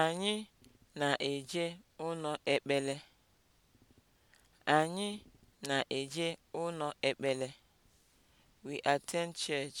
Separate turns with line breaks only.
Anyị na-eje ụlọ ekpele. Anyị na-eje ụlọ ekpele. We attend church.